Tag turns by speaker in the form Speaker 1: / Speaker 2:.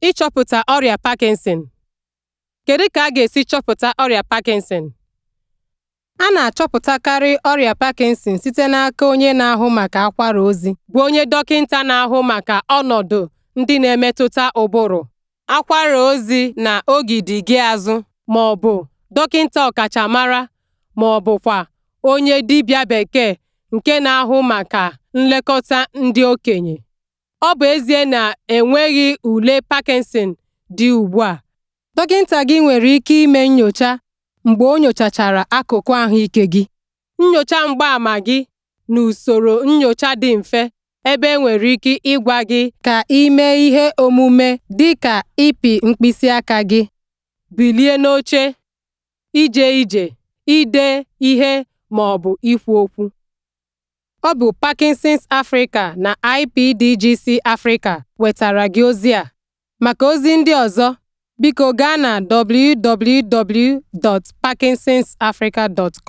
Speaker 1: Ịchọpụta ọrịa Parkinson Kedu ka a ga-esi chọpụta ọrịa Parkinson? A na-achọpụtakarị ọrịa Parkinson site n'aka onye na-ahụ maka akwara ozi bụ onye dọkịnta na-ahụ maka ọnọdụ ndị na-emetụta ụbụrụ, akwara ozi na ogidi gị azụ ma ọ bụ dọkịnta ọkachamara ma ọ bụkwa onye dibịa bekee nke na-ahụ maka nlekọta ndị okenye. Ọ bụ ezie na enweghị ule Parkinson dị ugbu a, dọkịnta gị nwere ike ime nyocha mgbe o nyochachara akụkụ ahụike gị, nyocha mgbaàmà gị na usoro nyocha dị mfe ebe enwere ike ịgwa gị ka ị ihe omume dị ka ịpị mkpịsị aka gị, bilie n'oche, ije ije, ide ihe ma ọ bụ ikwu okwu. Ọ bụ Parkinson's Africa na IPDGC Africa wetara gị ozi a. Maka ozi ndị ọzọ, biko gaa na www.parkinsonsafrica.com.